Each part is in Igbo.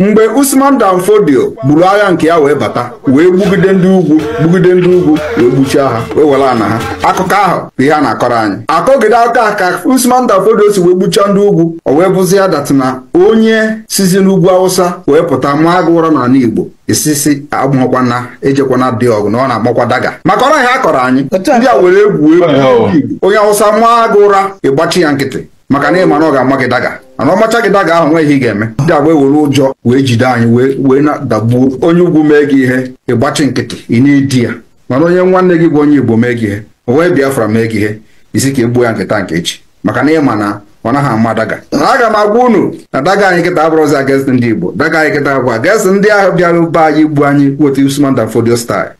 mgbe Usman Dan Fodio gburu agha nke ya wee bata wee gbugide ndị ugwu gbugide ndị ugwu wee gbuchie ha wee were ana ha akụkọ ahụ bụ ihe a na-akọrọ anyị akọgide aka ka Usman Dan Fodio si wee gbuchaa ndị ugwu o wee bụzi ya datina onye sizi n'ugwu Awụsa wee pụta mụ agụ ụra n'ala Igbo isisi agbụghọkwana ejekwana dị ọgụ na ọ na-akpọkwa daga maka ọrụ ahịa akọrọ anyị ndị a were egwu egwu onye Awụsa mụọ agụ ụra ịgbachi ya nkịtị maka na ịma mana ọ ga-ama gị daga mana ọmacha gị daga ahụ nweghị ị ga-eme ndị agba ewere ụjọ wee jide anyị wee na-adagbuo onye ugwu mee gị ihe ịgbachi nkịtị ị na-edi ya mana onye nwanne gị bụ onye igbo mee gị ihe o wee biafra mee gị ihe isi ka egbuo ya nkịta nke echi maka na ịma na ọ naghị ama daga aga m agwa unu na daga anyị kịta abụrụzi against ndị igbo daga anyị kịta agwa against ndị ahụ bịara be anyị igbu anyị wetu Usman Dan Fodio style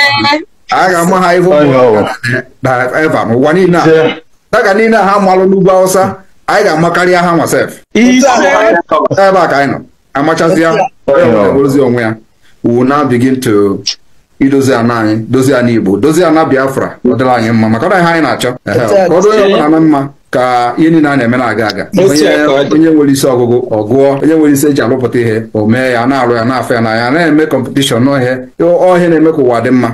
a ga-ama ha ihu eva n'ụwa niile daga niile ha malụ n'ugwu Hausa anyị ga-amakarị ha nwasef ebe a ka anyị nọ amachazịa ozi onwe ya wu now begin to idozi ana anyị dozie ana igbo dozie ana biafra ọ anyị mma maka ọ anyị na-achọ ka ọ ọbụla na mma ka ihe niile a na-eme na-aga aga onye nwere isi ọgụgụ ọ gụọ onye nwere isi eji alụpụta ihe o mee ya na-arụ ya na-afọ ya n'anya na-eme kọmpetishọn n'ọhịa ọhịa na-eme ka ụwa dị mma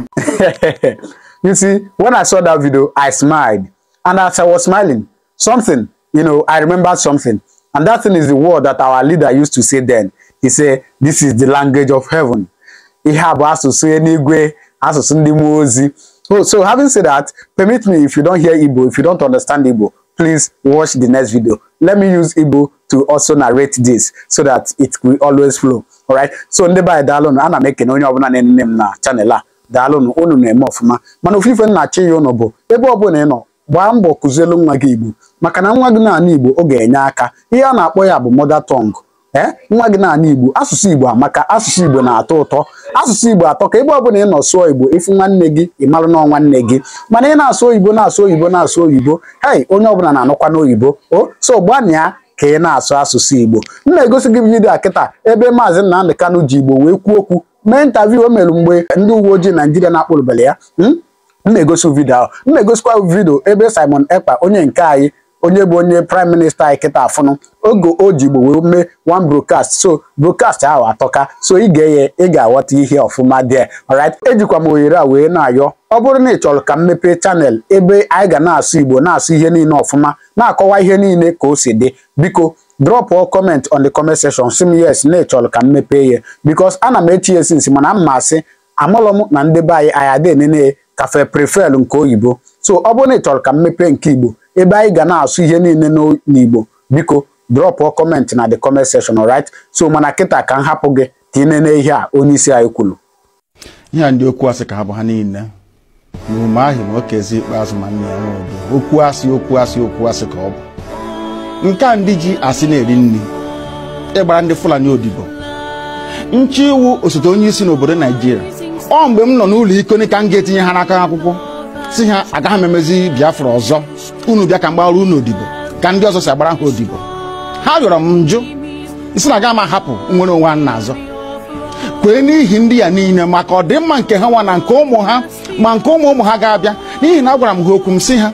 you see when i saw that video i smiled and as i was smiling something you know, I remember something. And that thing is the word that our leader used to say then. He said, this is the language of heaven. Ihe a bụ asụsụ eluigwe, asụsụ ndị mmụọ ozi. So, oh, so having said that, permit me if you don't hear Igbo, if you don't understand Igbo, please watch the next video. Let me use Igbo to also narrate this so that it will always flow. All right. So ndị baa daalụnụ, ana m ekene onye na-enene na chanel a. Daalụnụ, unu na-eme ọfụma. Mana ofufe nna chi ya unu bụ ebe gbaa mbọ kụzielu nwa gị Igbo maka na nwa gị na Igbo ọ ga-enye aka ihe a na-akpọ ya bụ mother tongue e nwa gị na Igbo asụsụ Igbo amaka asụsụ Igbo na-atọ ụtọ asụsụ Igbo atọ ka ebe ọbụla ị nọ sụọ Igbo ịfụ nwanne gị ị marụ na nwanne gị mana ị na-asụ oyibo na-asụ oyibo na-asụ oyibo hei onye ọbụla na-anụkwa n'oyibo o so gbanịa ka ị na-asụ asụsụ Igbo m na-egosi gị vidiyo a kịta ebe maazị Nnamdị Kano ji Igbo wee kwuo okwu mee ntaviu o mere mgbe ndị uwe ojii Naijiria na-akpụrụbere ya hmm? m na-egosi vidio ahụ m na-egosikwa vidio ebe Simon Ekpa onye nke anyị onye bụ onye prime minista anyị kịta afụnụ oge o ji Igbo wee mee one broadcast so broadcast ahụ atọka so ị ga-eye ị ga-aghọta ihe ọfụma dị alright ejikwa m ohere a wee na-ayọ ọ bụrụ na ị chọrọ ka m mepee chanel ebe anyị ga na-asụ Igbo na-asụ ihe niile ọfụma na-akọwa ihe niile ka o si dị biko all comment on the comment section sị yes na ị ka m mepee ihe because ana m echi ya nsi mana m ma asị amụlọ m na ndị be anyị anyị adị enene kafe prefel nke oyibo so ọ bụrụ na ị chọrọ ka mmepe nke igbo ebe anyị ga na-asụ ihe niile n'igbo biko drọpụọ comment na the comment section right so mana kịta ka m hapụ gị ka ị nene ihe a onye isi anyị kwuru ihe a ndị okwu asị ka ha bụ ha niile n'ume ahụ ma okezi ikpeazụ ma nna ya nwee okwu asị okwu asị okwu asị ka ọ bụ nke a ndị ji asị na-eri nri ịgbara ndị fulani odibo nchi iwu osote onye isi n'obodo naijiria ọ mgbe m nọ n'ụlọ iko ka m ga-etinye ha n'aka akwụkwọ si ha agaghị m emezi biafra ọzọ unu bịa ka m gbara unu odibo ka ndị ọzọ si agbara ha odibo ha rịọrọ m njụ isi na aga m ahapụ nwere onwe a azọ kwee n'ihi ndị ya niile maka ọdịmma nke ha nwa na nke ụmụ ha ma nke ụmụ ụmụ ha ga-abịa n'ihi na agwara m ha okwu m si ha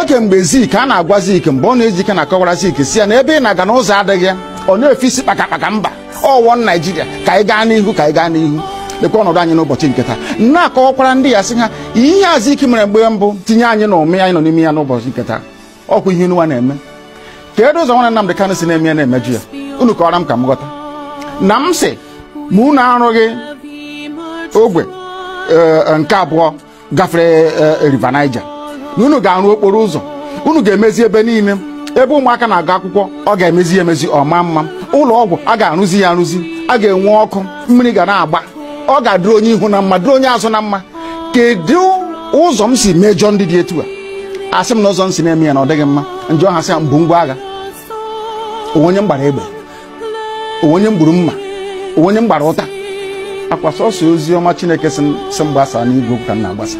oge mgbe zik a na-agwa zik mgbe ọ na-eji ike na-akọwara zik si ya na ebe ị na-aga n'ụzọ adịghị ọ na-efe isi kpakakpaka mba ọwọ naijiria ka anyị gaa n'ihu ka anyị gaa n'ihu lekwa ọnọdụ anyị n'ụbọchị nke taa na-akọwakwara ndị ya sị ha ihe azụ ike mere mgbe mbụ tinye anyị na ụmị anyị nọ n'ime ya n'ụbọchị nke taa ọkwa ihe nwa na-eme kedu ụzọ nwa Nnamdi Kanu si na-eme ya na-emeju ya unu kọwara m ka m ghọta na m sị ma unu arụghị ogwe eh, nke abụọ gafere eh, riva naija na unu ga-arụ okporo ụzọ unu ga-emezi ebe niile ebe ụmụaka na-agụ akwụkwọ ọ ga-emezi ya emezi ọma mma ụlọ ọgwụ a ga-arụzi ya arụzi a ga-enwe ọkụ mmiri ga na-agba ọ ga-adịrị onye ihu na mma dịrị onye azụ na mma kedu ụzọ m si mejọ ndị dị etu a asị m na ụzọ m si na-eme ya na ọ dịghị mma njọ ha sị ya mbụ ngwa agha onye m gbara egbe onye m gburu mma onye m gbara ụta akwa sọsọ ozi ọma chineke si m gbasa n'igwe ka m na-agbasa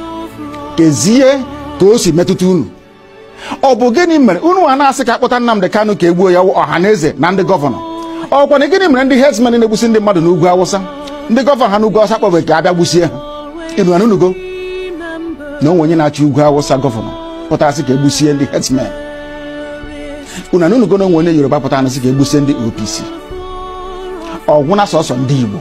kezie ka o si metụta unu ọ bụ gịnị mere unu a na-asị ka akpọta Nnamdi Kanu ka egbuo ya ọha na eze na ndị gọvanọ ọkwa na gịnị mere ndị herdsmen na-egbusi ndị mmadụ n'ugwu Awụsa ndị gọvanọ ha n'ugwu awụsa kpọbere ka abịa gbusie ha ịnụra n'unugo na onwe onye na achọ ugwu awụsa gọvanọ pụtasị ka egbusie ndị herdsmen ụnụ n'unugo na onwe onye yoruba pụta anasị ka egbusie ndị opc ọgwụna sọsọ ndị igbo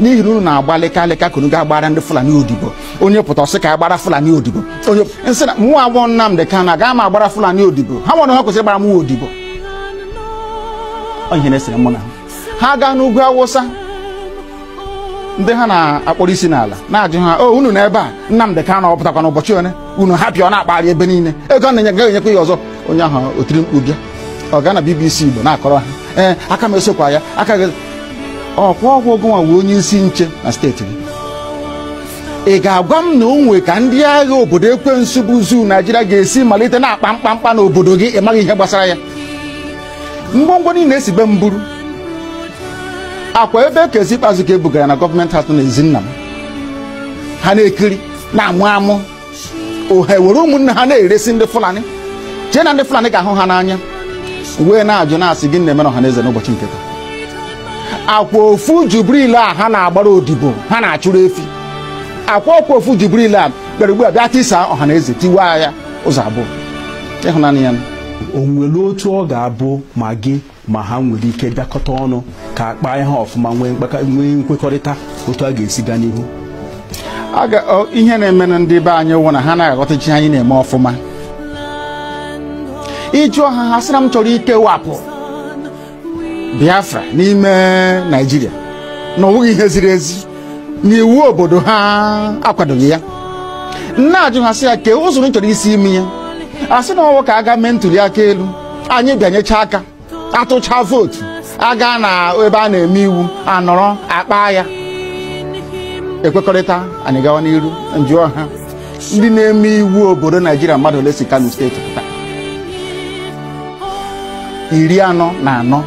n'ihi na unu na agbalị ka lịka ka unu ga-agbara ndị fulani odibo onye pụta ọsị ka agbara fulani odibo onye nsị na mụ agbọ nnamdị ka na agaghị ma agbara fulani odibo ha nwere ha kwesịrị gbara mụ odibo ihe na-esere mụ na ha ha n'ugwu awụsa ndị ha na-akpọrọ isi n'ala na-ajụ ha o oh, unu na ebe a Nnamdị Kanu ọpụtakwa n'ụbọchị one unu hapịa ọ na-akpagharị ebe niile ego na-enye enyekwa ya ọzọ onye ahụ otiri mkpu bịa ọ gaa na BBC Igbo na-akọrọ ha ee eh, aka m esokwa ya aka gị ọkwa ọgwụ ogonwa wee onye isi nche na steeti gị ị ga-agwa m na o nwe ka ndị agha obodo ekwensu bụ zuu Naijiria ga-esi malite na-akpa mkpamkpa n'obodo gị ị maghị ihe gbasara ya ngwongwo niile esi be m buru akwa ebe kezi ikpeazụ ka ebugara na gọọmenti hatụ na ezinna m ha na-ekiri na-amụ amụ ohe were ụmụnne ha na-eresi ndị fulani chee na ndị fulani ga-ahụ ha n'anya wee na-ajụ na-asị gị na na ọha na eze n'ụbọchị nke taa akwa ofu jubril a ha na-agbara odibo ha na-achụrụ efi akwa ọkwa ofu jubril a bịara ugbu a bịa tisaa ọha na eze tiwaa ya ụzọ abụọ ịhụnanya ya o nwere otu ọ ga-abụ ma gị ma ha nwere ike bịakọta ọnụ ka akpa ha ọfụma nwee nkwekọrịta otu a ga-esi gaa n'ihu ihe na-emenụ ndị be anyị wụ na ha na chi anyị na-eme ọfụma ịjụọ ha ha sịra m chọrọ ikewapụ Biafra n'ime Naịjirịa na ọ bụghị ihe ziri ezi na iwu obodo ha akwadoghị ya na-ajụ ha sị ya kee ụzọ chọrọ isi imi ya a sị na ọnwụ ka a gaa mee ntuli aka elu anyị bịanyecha aka atụcha vootu aga na ebe a na-eme iwu anọrọ akpa ya ekwekọrịta anyị gawa n'iru nju ọha ndị na-eme iwu obodo naijiria mmadụ ole si kano steeti pụta iri anọ na anọ 44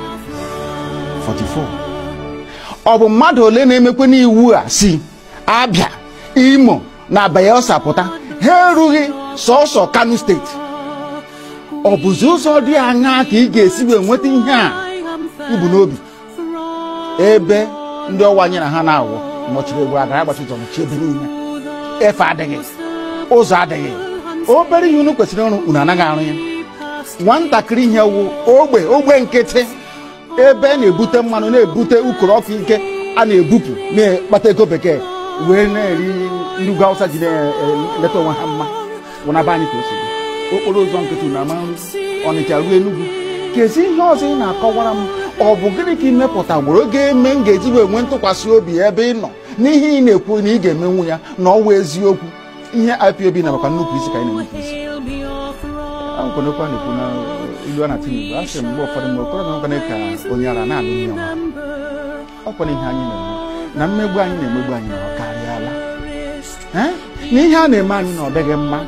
ọ bụ mmadụ ole na-emekwe n'iwu a si abịa imo na bayelsa pụta ha erughị sọsọ kano steeti ọ bụzi ụzọ dị aṅa ka ị ga-esi wee nweta ihe a ibu n'obi ebe ndị anyị na ha na-awụ nọchiri egwu adara gbachijọ nọchi ebe niile efe adịghị ụzọ adịghị obere ihe unu kwesịrị ọrụ unu anaghị arụ ya nwatakịrị ihe wụ ogbe ogbe nkịtị ebe na-ebute mmanụ na-ebute ukoro ọkụ ike a na-ebupụ na-ekpata ego bekee wee na-eri ndị ugwu awụsa ji na-eleta onwe ha mma wụnaba anyị ka o okporo ụzọ nkịtị na ama ọnịcha ruo enugwu kezi ihe ọzọ ị na-akọwara m ọ bụ gịnị ka ị mepụtagburu oge eme m ga-eji wee nwee ntụkwasị obi ebe ị nọ n'ihe ị na-ekwu na ị ga-emenwu ya na ọwa eziokwu ihe IPOB na makwa nnupụ isi ka anyị na-enupụ isi akwenekwa na-ekwu na ilu a na Tinubu asị m mgbe ụfọdụ mgbe okoro na nkwanye ka onye ara na-alụ nwunye ọma. ọkwara ihe anyị na-eme na mmegbu anyị na-emegbu anyị na ọ karịala na ihe a na-eme anyị na ọ dịghị mma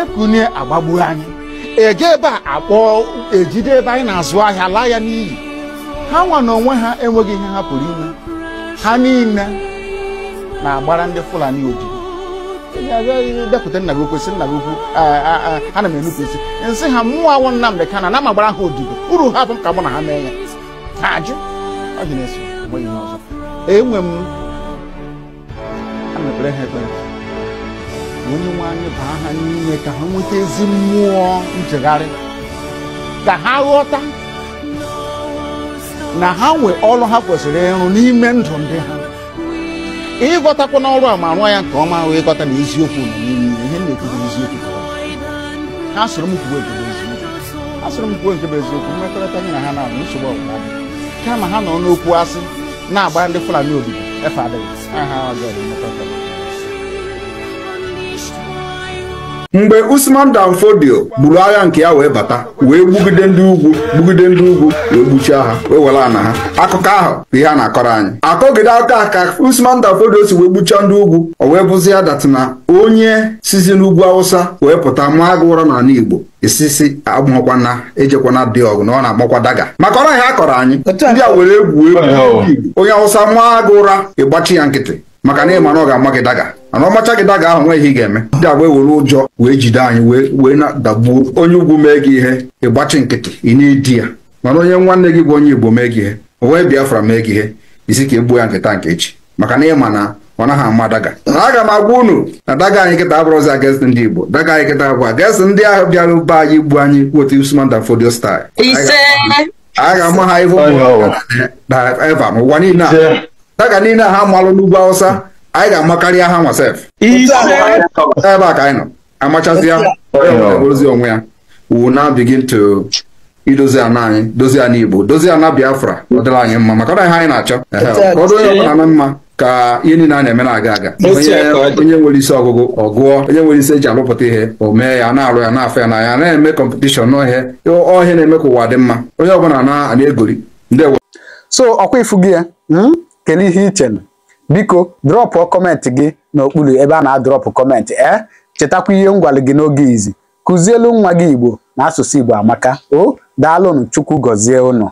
ekunye agbagbu anyị ege ebe a akpọọ ejide ebe anyị na-azụ ahịa laa ya n'iyi ha nwa na onwe ha enweghị ihe ha pụrụ ime ha niile na-agbara ndị Fulani odibo depụta nna gị okwu nna gị okwu ana m enupụsị nsị ha mmụọ awụ Nnamdị kana na m agbara ha odibo uru ha bụ ka mụ na ha mee ya ha ajụ ọ dị na-eso enwe m a mepere ha ekpere onye nwe anyị baa ha n'ime ka ha nweta ezi mmụọ nchegharị ka ha ghọta na ha nwee ọrụ ha kwesịrị ịrụ n'ime ndụ ndị ha ịghọtakwa n'ọrụ a ma rụọ ya nke ọma wee ịghọta na eziokwu nọ n'ime ihe na-ekwugo eziokwu ha sụrụ m kwuo nke bụ eziokwu ha sụrụ m kwuo nke bụ eziokwu mmekọrịta anyị na ha na-abụ nsogbu ọgwụgwa kama ha nọ n'okwu asị na-agba ndị Fulani obibi efe adịghị ha ha ọjọọ mmekọrịta mgbe Usman Dan Fodio gburu agha nke ya wee bata wee gbugide ndị ugwu gbugide ndị ugwu wee gbuchie ha wee were ana ha akụkọ ahụ bụ ihe a na-akọrọ anyị akọgide aka ka Usman Dan si wee gbuchie ndị ugwu o wee bụzi ya na onye sizi n'ugwu Awụsa wee pụta mụọ gị ụra n'ala Igbo isisi agbụghọkwana ejekwana dị ọgụ na ọ na-agbakwa daga maka ọrụ ha akọrọ anyị ndị a were egwu egwu onye Awụsa mụọ gị ụra ịgbachi ya nkịtị maka na ịma na ọ ga-ama gị daga mana ọmacha gị daga ahụ nweghị ị ga-eme ndị agba ewere ụjọ wee jide anyị wee wee dagbuo onye ugwu mee gị ihe ịgbachi nkịtị ị na-edi ya mana onye nwanne gị bụ onye igbo mee gị ihe o wee biafra mee gị ihe isi ka egbuo ya nkịta nke echi maka na ịma na ọ naghị ama daga aga m agwa unu na daga anyị kịta abụrụzi against ndị igbo daga anyị kịta abụọ against ndị ahụ bịara be anyị igbu anyị kwotu Usman Dan Fodio style a ga-ama ha ihu eva n'ụwa niile a daga niile ha malụ n'ugwu Awụsa anyị ga-amakarịa ha nwasef ebe a ka anyị nọ amachazịa ozi onwe ya we will now begin to idozi ana anyị dozie ana igbo dozi ana biafra ọ anyị mma maka na ihe anyị na-achọ ọdụ onye ọbụla na mma ka ihe niile a na-eme na-aga aga onye nwere isi ọgụgụ ọ gụọ onye nwere isi eji alụpụta ihe o mee ya na-arụ ya na-afọ ya na ya na-eme kọmpetishọn n'ọhịa ọhịa na-eme ka ụwa dị mma onye ọbụla na-egori ndị so ọkwa ifu gị ya hmm? kedu ihe iche biko drọpụ kọmentị gị n'okpuru ebe a na-adrọpụ kọmentị ee eh? chetakwa ihe ngwalị gị n'oge izi kụzielu nwa gị Igbo na asụsụ Igbo amaka o daalụnụ Chukwu gọzie ụnụ